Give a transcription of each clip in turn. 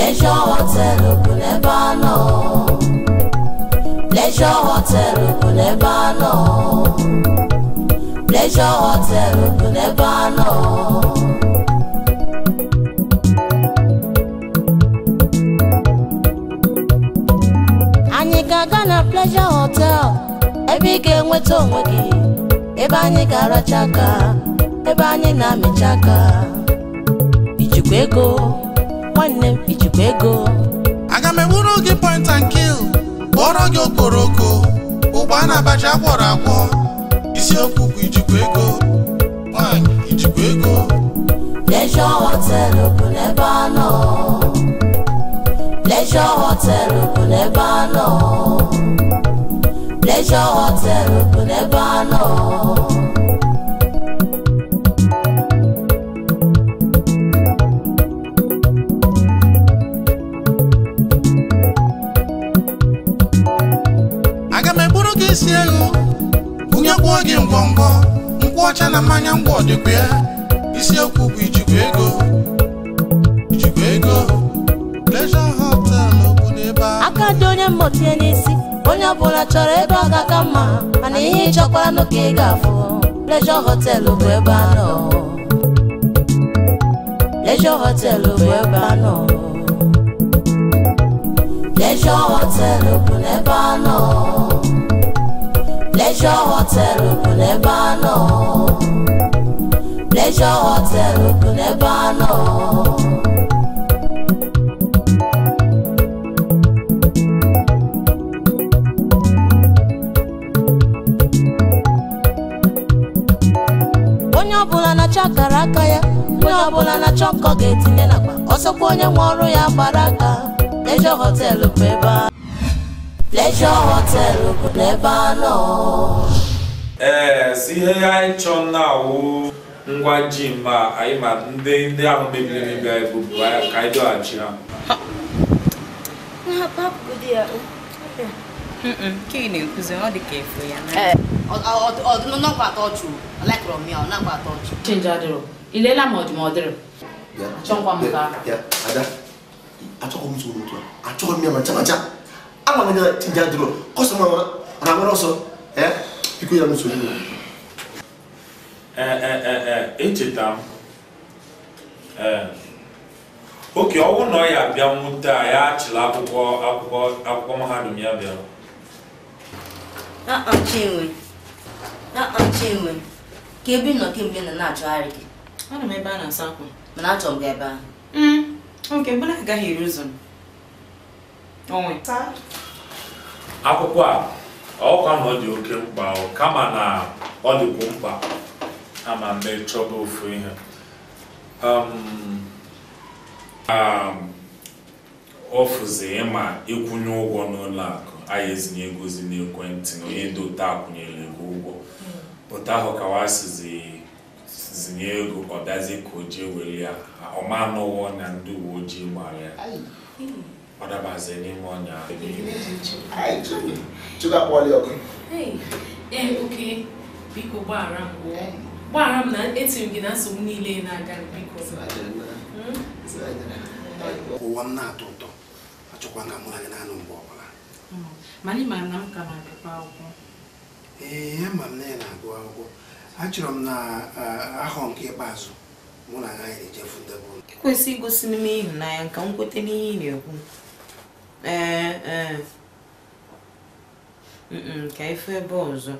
Pleasure hotel ogun ẹ bá lọ. Leisure hotel ogun ẹ bá lọ. Leisure hotel ogun ẹ bá lọ. Anyị ga na Pleasure Hotel ebe ị ga-enweta onwe gị ebe anyị ga chaka, ebe anyị na-amịcha aka ijikwa ego nwanne m ego aga m ewuru gị point and kill kpọrọ gị ụgbọ ụgba na abacha akwọrọ akwọ isiokwu bụ ijikwa ego nwanyị ijikwa ego leisure a ngọngọ nkwụ ọcha na mmanya ngwa dịkwa ya isiokwu bụ ijikwa ego ijikwa ego Pleasure hotel n'okwu n'ebe ahụ aka dị onye mmọtinye n'isi onye ọbụla chọrọ ebe ọ ga-aka mma mana ihe ịchọkwara n'ụka ị ga-afụ leisure hotel bụ ebe a nọ leisure hotel bụ ebe a nọ leisure hotel bụ n'ebe a nọ Pleasure Hotel bụ n'ebe a nọ Pleasure Hotel onye ọbụla na-achọ akara aka ya onye ọbụla na-achọ nkọ ga-etinye n'akpa ọsọkwa onye nwe ọrụ ya gbara aka Pleasure Hotel bụ ebe a ẹ jọ̀wọ́ tẹ lóògùn Lebanon. ee si ihe anyị chọ na awụ ngwa ji ma anyị ma ndị ndị ahụ mebiri emebi anyị bụ ka anyị dọghachi ha nke ị na-ekwuzi ọ dị ka efu ya ọnọkwa atọ ọchụ lekọrọ m ya ọ nakwa atọ ọchụ chenji adịrọ ilela ma ọdị ma ọ dịrị achọkwa m ka achọkwa m soro otu achọghị m ya ma ncha ma ncha ama na jadro kọsọma na nwere ọsọ biko ya nsogbu echeta m oke ọnwụ na ọ ya bịa nwute a ya achịla akwụkwọ akwụkwọ akwụkwọ mahadum ya bịara chinwe chinwe ka ebe nọ kemgbe na na-achọgharị gị ana m ebe a na-asa akwa mana achọrọ m gị ebe ahụ nke mm, mbụ na agaghị eri ụzọ m akwụkwọ a ọkwa na ọ dị oke mkpa kama na ọ dịkwu mkpa ama mme chọba ofu ihe ofuzi ịma ịkwụnye ụgwọ n'ụlọ akụ anyị ezinye egozi n'ekwentị na onye dota akwụnyere ego ụgwọ pụta hmm. ahụ ka wasizi sizinye ego ọ dazie ka o jee were ya ọma anụwọ na ndị uwe ojii mara ya ọ n'ime ọnya ọkụ eh, oke biko gbaghara m gbaghara m na etiri gị na nsogbu niile na-aga biko hmm? ụwa m na-atọ ụtọ achọkwa ka mụ na gị anụ mgbe ọbụla hmm. mana ịmara na m ka na-agụkwa akwụkwọ ee m na na-agụ akwụkwọ achọrọ m na ahọ nke ikpeazụ mụ na agaghị ejefu ụlọ ekwesị igosi n'ime ịhụnanya nka m kweta n'ihe ị na-ekwu ee ee ka ife ebe ọzọ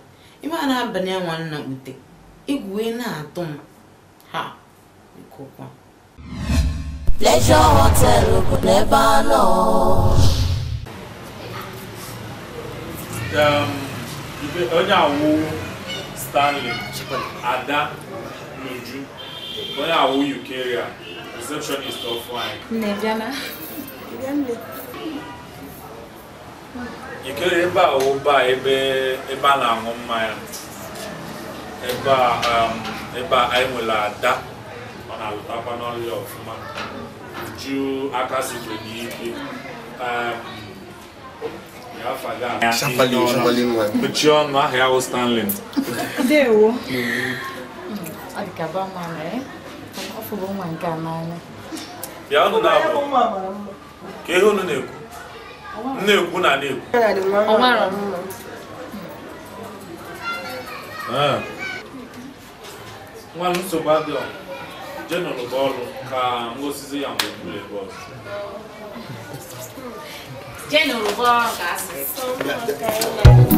ime a na-abalị nwa nna ute igwe na-atụ m ha ikokwa Pleasure Hotel bụ n'ebe anọ onye awụ Stanley Ada N'Uju onye awụ Ukeria receptionist of ikere ebe a ụba ebe ebe a na-aṅụ mmanya ebe a um, ebe a anyị nwere ada ọ na-alụtakwa n'ọlịa ọfụma uju aka sikwe n'ikpe ọnụ um, ya wụ a ka ihe na-ekwu na-ekwu na na-ekwu ah. nwa nsogbu adịọ jenụrụ bụ ọrụ ka ngosizi ya mgbe buru ebu ọzọ jenụrụ bụ ọrụ ka asị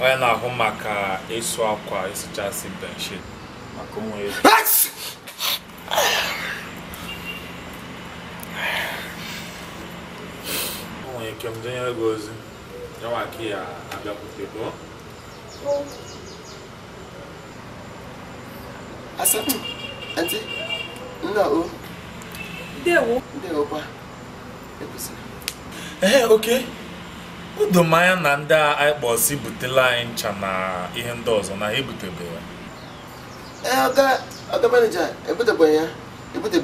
onye na-ahụ maka ịsụ akwa ịsụchasị benshit maka onwe ya onwere ike m denyere gị ozi Eu ka a abịakwute gụọ asatọ eti nna o ndewo ndewokwa ekwesịrị ee É, okay. udomanya na ndị a anyị butela anyị ncha na ihe ndị ọzọ na ha ebutebeghị ọga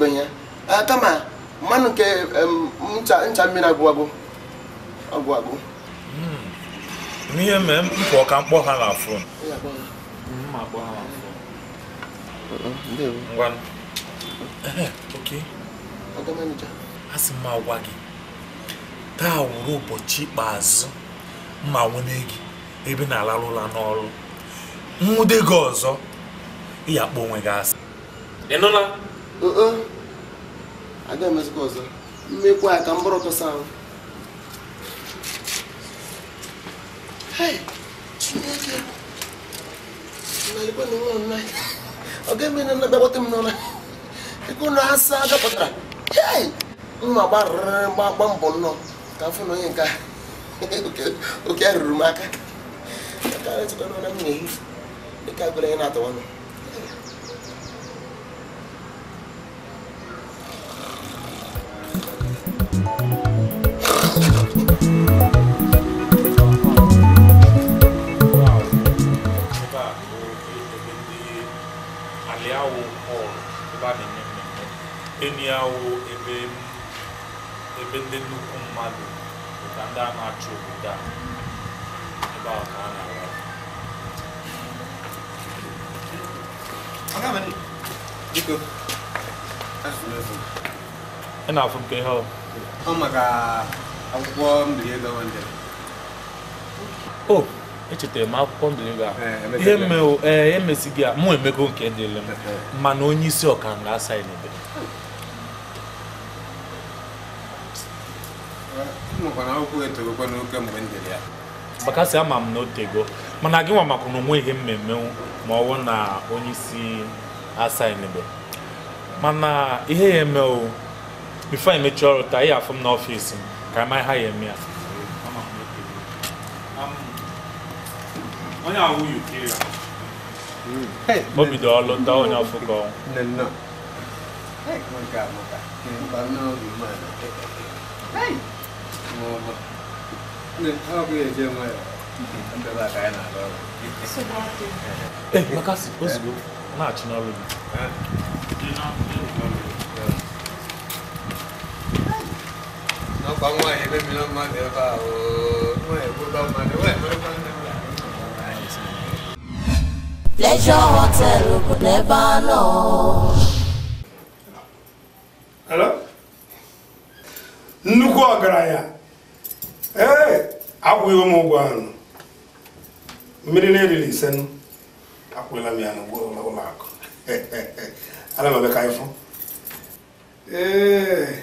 ya ya kama mmanụ nke ncha mmiri agwụ agwụ hmm. n'ihe mee mkpọ ka mkpọ ha na afọ a sị gị taa wụrụ ụbọchị ikpeazụ mma nwune gị ebe na-alarụla n'ọrụ nwude gị ọzọ ịya akpọ onwe gị asị aga ọzọ ka ọ ga-eme na m ngafuna uyenka ukuyarurumaka akawetsikonona mnyehi ikakula yenatona Aliawo kọlụ ebe a na-eme mmemme, enyi awo ebe ebe ndị nnukwu mmadụ ka ndị a na-achị obodo a ebe ahụ ka a na ị na-afụ nke ihe ọ o echetara m akwụkwọ eh, eh, mụ emego nke dịrị mana onye isi ọka na-asa ya na akwụkwọ etorokwa n'oke mgbe m ya bakasị ama m na ego, mana gị nwa makwa na mmemme ma ọwụ na onye isi asainbe mana ihe ya eme o bifo anyị mechie ọrụ taa ihe afụ m n'ọfịs m ka ama ha ya eme ya hmm. ọlụ onye Hey! Hey, Makasi, let's go. Match, not really. Pleasure hotel could never know. Hello? Nnukwu ọgaranya ee akwụghị m ụgwọ anụ mmiri na-eriri ise akwụla m ya n'ụlọ akụ ana m ka ịfụ ee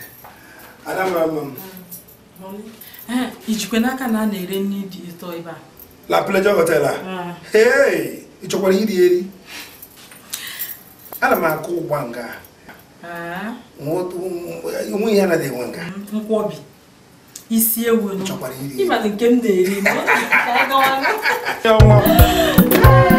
ana m ama m ijikwe n'aka na a na-ere nri dị ụtọ ebe a la pleasure hotel a ee ị chọkwara iri eri ana m akụ nga nwe ihe anaghị enwe nga isi ewu nke m na-eri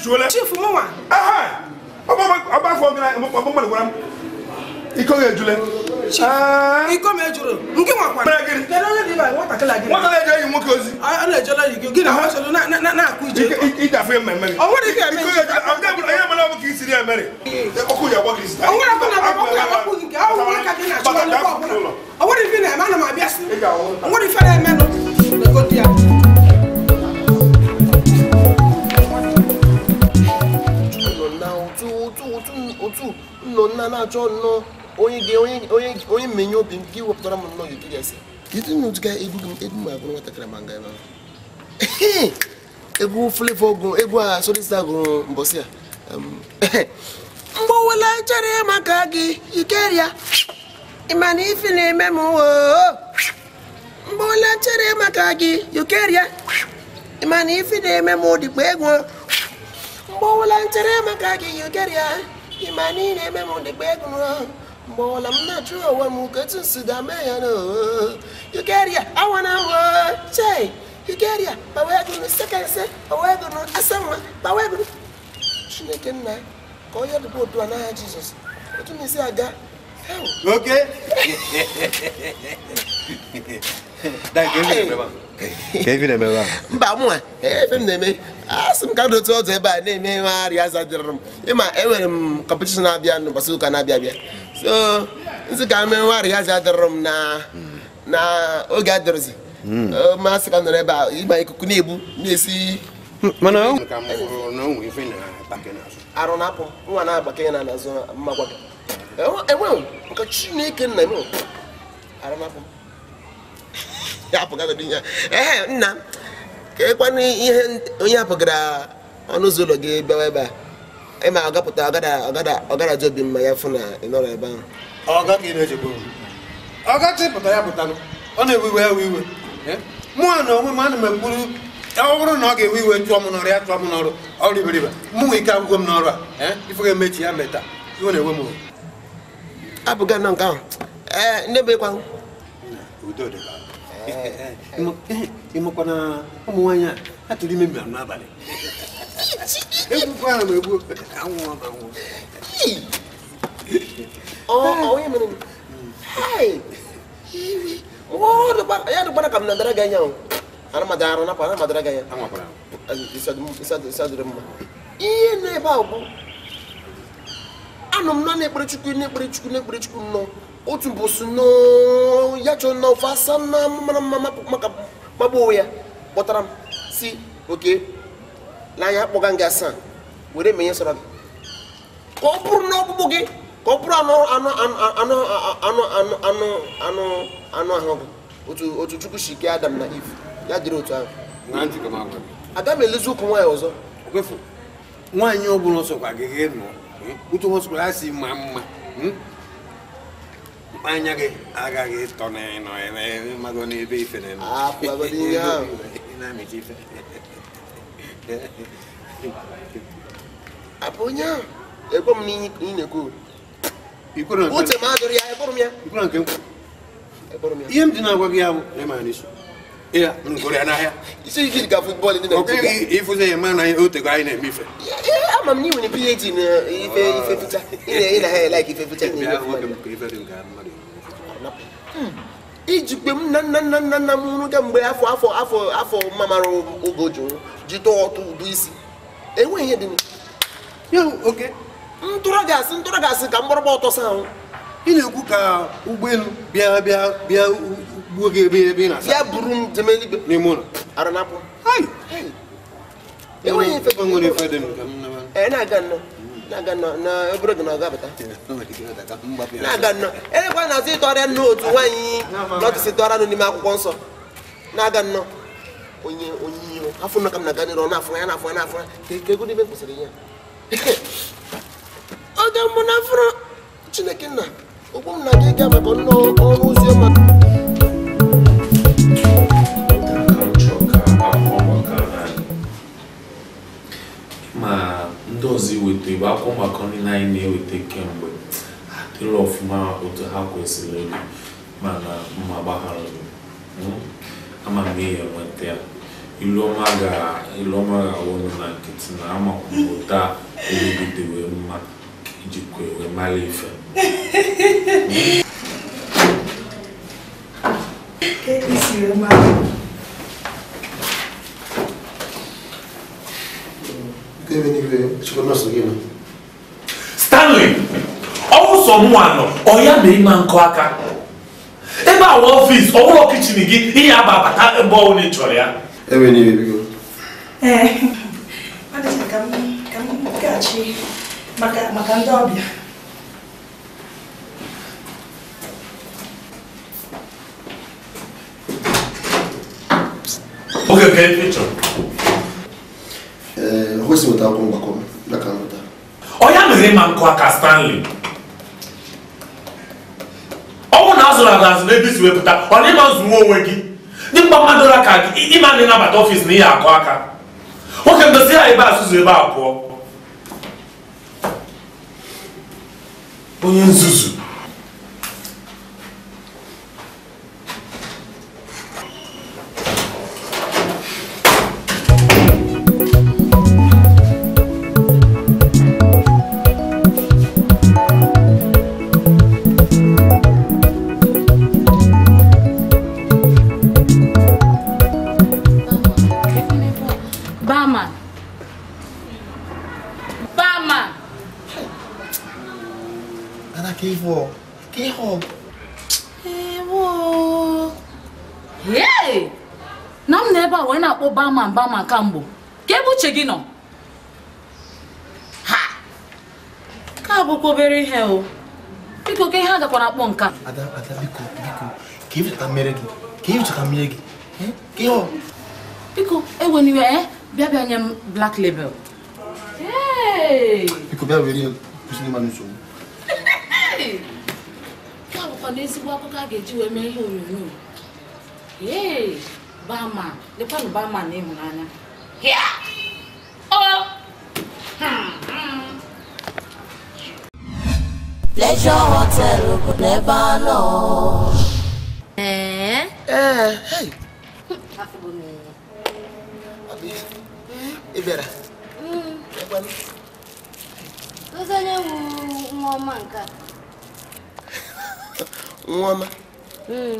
nsuo lɛ. chief mu wa. ɔba fɔ mi na ɔba mɔ ne wura mu ikɔ mi ejule. chief ikɔ mi ejule nke nwa kwa. mɛrɛ gini. kɛlɛ ɔlɛ bi ba wɔta kɛlɛ ajɛ. wɔta kɛlɛ ajɛ yi mu k'ozi. ɔlɛ ejule yi gini ɔmɔ sɔrɔ na na na ku ije. ija fɛ mɛ mɛri. ɔwɔ de kɛ mɛ. ikɔ ejule ɔn tɛ bolo ɛyɛ mɔlɔ bɔ k'i siri ɛmɛri. ɔkú yà bɔ k'i siri. ɔwɔ de fana bɔ k'u yà bɔ k'u yi kɛ ɔwɔ de fana bɔ k'u yà bɔ k'u de fana bɔ k'u yà bɔ k'u de fana bɔ k'u 2 nnọ nna na-achọ nnọọ onye menye obi m gị wepụtara m nnọọ gị gasị kedu na otu ga egwu gị egwu ma bụrụ nwatakịrị ma nga ebe egwu flevo gụrụ egwu a solista gụrụ mbọsị a mgbowela nchere maka gị ikeria ịma na ife na-eme m mgbowela nchere maka gị ikeria ịma na ife na-eme m dịkwa egwu mgbowela nchere maka gị ikeria ịma niile ị eme m dịkpa mgbe ọla m na-achụ onwe m ka etu si mee ya na awana sekense chineke nna ka onye otu a n'agha jizọs otu na isi aga mba m na-eme asị sị m ka ebe a na-eme ihe arịa aza dịrị m ịma enwere m kọmpetishọn na-abịa n'ụbọchị ụka na-abịa abịa so nsi ka arịa na oge hmm. masị ka nọrọ ebe a ikuku na-ebu na-esi arụ na-apụ nwa na-agbake ya na enwe e nke chineke nna e arụ na-apụ ya nna m ka ekwana ihe onye apụgara ọnụ ụzọ ụlọ gị bịawa ebe a ịma agapụta ọgara ji obi mma ya fụ na ị nọrọ ebe ahụ ọgachi pụta ya pụta ọ na-ewe iwe ewe iwe mụnwa na onwe m ana m ekwuru ọ bụrụ na ọ ga-ewe iwe chụọ m n'ọrụ ya chụọ m n'ọrụ ọrụ iberibe mụ nwe ike agwụgwọ m n'ọrụ a ife ga-emechi ya meta iwe na-ewe m abụga nọ nke ahụ ee ndị bụ ịkwa ị makwana ụmụ nwaanyị a ha tụrụ ime mmiri n'abalị egbukwa ha ma egbu anwụ anwụ ya dụgbara ka m na dara gị anya ara madara eh, arụ napụ ara madara gị anya ịsadụrụ mma ihe na-ebe ahụ bụ anọ m na na-ekpere chukwu na-ekpere chukwu na-ekpere chukwu nnọọ otu mbọsụ nnọọ ya na ofe asa na mara mma maka magbu onwe ya kpọtara m si oke n'anya kpọga gị asaa were menye sọrọ gị ka ọ bụrụ na gị ka ọ bụrụ anụ anụ ahụ gị otu chukwu si kee adam na iv ya dịrị otu ahụ aga m elezi ụkwụ nwaanyị ọzọ nwaanyị ọ bụla ọsọkwa gị gị nọ uche ọsọkwa ya si ma mma anya gị agaghị ịtọ n'ịnọ mago n'ebe ife na-eme na-amịta ife abụ onye ahụ ekwe m n'ihe ị na-ekwu uche m adụrụ ya ekpụrụ m ya ihe m dị na-agwa gị ya bụ ịma n'isi ịfụzi ya na otego anyị na-eme ife ama m na iwere phd na na ficha na nna nna nna m nwụrụ kemgbe afọ afọ afọ afọ mamara oge jụrụ ọtụ ụdụ isi enweghị ihe dị ntụrụ gasị ntụrụ ka mgbọrọgba ọtọ sa ahụ ị na-ekwu ka ụgbọelu nwoke ebe ebe na ya bụrụ m jeme n'ime ụlọ ara na na-aga nnọọ e na-aga nnọọ na na aga na-azụ ịtọrịa nnụ otu nwaanyị n'ime akwụkwọ nsọ na-aga onye onye iro afọ na-aga na-afụ ya na-afụ ya na-afụ ya na fụrụ chineke nna m na-aga ịga maka ọrụ akwụkwọ maka anyị ma ndị ọzọ iweta igbe akwụkwọ maka nri anyị na-eweta kemgbe adịrị ọfụma otu ha kwesịrị ịdị mana mma gbaghara hmm? ama m ihe nweta ya iluọma ga-awụ ọnụ na nkịtị na amakwụkwọ taa wee mma ijikwa e ewe mara ife Isi e wee so nurse yi no. stanley ɔwosɔ mu ano ɔya mɛrima nkɔ aka ebe a wɔ ɔfiisi ɔwɔ kitchen gi ihe aba abata ebe ɔwɔ ne ntwere ya. ebe ni ebi go. ɛɛ adịghị ka m ka m gaghachi maka maka ndị ọbịa. oge ka efi chọrọ. ee o kwesịrị weta akwụkwọ mgbakọ m. ọ mere ma nkụ aka stanley ọnwụ na azụrụ azụ azụ n'ebe isi wepụta ọ ịma nzụwa onwe gị dị mkpa mmadụ aka gị ịma ndị ịnabata ọfịs na ihe akụ aka nwoke ndozi ya ebe azụzụ ebe a pụọ onye nzuzu barman barman ana ka ịhụ ka ịhụ ewo eh, yee na m na ebe a wee na-akpọ bama barman kamgbo ka ebe uche gị nọ ha ka bụkwa obere ihe o biko ka ihe a nka ada ada biko biko ka ịchọta mmiri gị ka ịchọta mmiri gị biko e eh? Bebe black label. Hey! Iko bebe weli yon, kusi manu sou. Hey! Kwa lukwande si wakoka geji we me yon yon yon. Hey! Bama, lepa nou bama ne moun anya. Hiya! Oh! Hmm, hmm. Pleasure Hotel Ogun Nebano. Eh? Eh, hey! Afi bomi. ị bịara onye nwa nke a nwa hmm.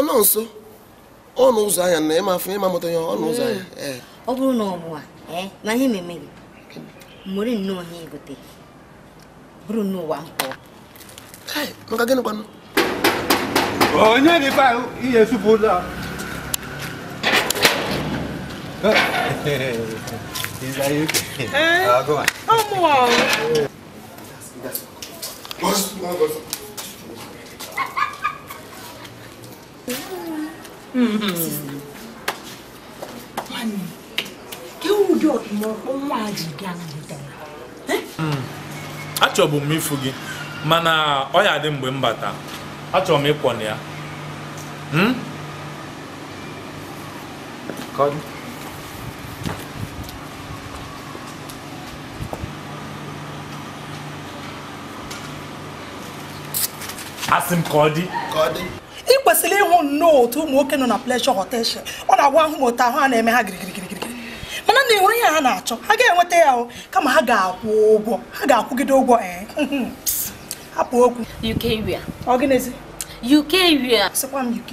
nwa nso ọnụ ụzọ anya na ịma afọ ịma ya ọnụ ụzọ anya hmm. ọ bụrụ na ọ bụ na ihe meme gị mmeri nnọọ ihe gote bụrụ n'ụwa mpụ gịnị kwanụ Onye nipa iye supu la. Is that you? Eh? Uh, go on. I'm wow. Boss, no, boss. Mami, kí o dọ̀ mọ ọmọ àjìgá àjìgá? Achọbụ m ifu gị, mana ọ ya dị mgbe m bata. achọrọ m ịkwọ na ya hmm? asị m ka ọ dị ị kwesịrị ịhụ nnọọ otu ụmụ nwoke nọ na Pleasure hotel ọ na-agwa ahụ m otu ahụ a na-eme ha girigirigirigiri mana na enwere ihe ha na-achọ ha ga-enweta ya kama ha ga-akwụ ụgwọ ha ga-akwụgide ụgwọ ee akpa okwu UK ria ọ gịnịzi UK ria sịkwa m UK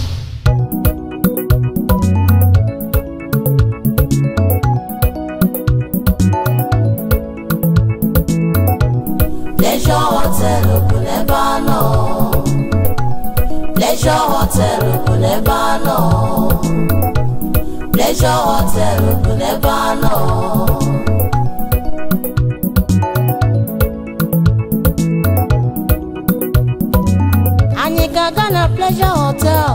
Pleasure hotel ògùn lẹ bá lọ. hotel ògùn lẹ bá lọ. hotel ògùn lẹ bá lọ. Anyị ga na Pleasure Hotel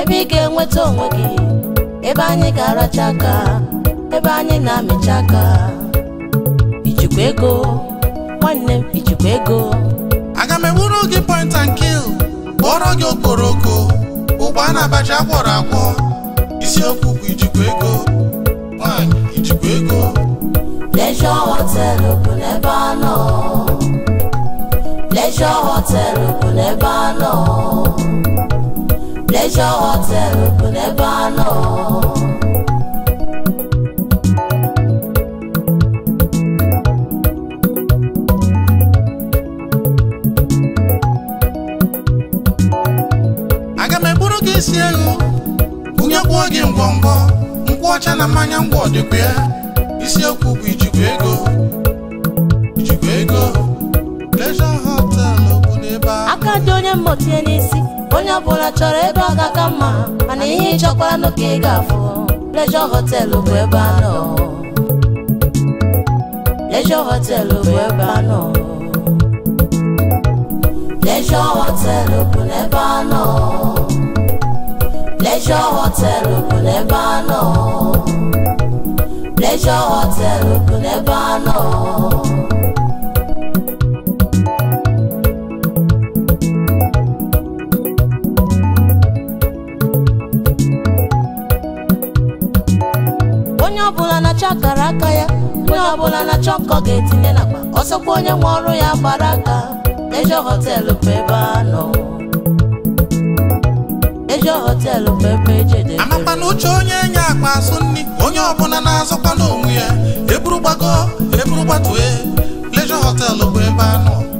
ebe ị ga-enweta onwe gị ebe anyị ga-aracha ebe anyị na-amịcha aka ijikwa ego nwanne m ichekwa ego aga m ewuru gị point and kill kpọrọ gị okporoko ụgba na abacha akwọrọ akwọ isiokwu bụ ijikwa ego nwanyị ijikwa ego Leisure Hotel bụ n'ebe a nọ Leisure Hotel bụ n'ebe a nọ Leisure Hotel bụ n'ebe a nọ esi ego bunye kwuo gị ngwọngwọ nkwụ ọcha na mmanya ngwọ dịkwa ya isiokwu bụ ijikwa ego ijikwa ego pleasure hotel bụ n'ebe ahụ aka dị onye mmụta n'isi onye ọbụla chọrọ ebe ọ ga-aka mma mana ihe ịchọkwara n'oke ị ga-afụ pleasure hotel bụ ebe anọ pleasure hotel bụ ebe anọ pleasure hotel bụ n'ebe anọ Pleasure Hotel bụ n'ebe anọ Pleasure Hotel bụ n'ebe anọ onye ọbụla na-achọ akara aka ya onye ọbụla na-achọ nkọ ga-etinye n'akpa ọsọkwa onye nwe ọrụ ya gbara aka Pleasure Hotel bụ ebe anọ ego e na uche onye enye akpa asụ nri onye ọbụla na-azụkwa n'onwe ya eburu gbago gbatue pleasure hotel bụ ebe a nọ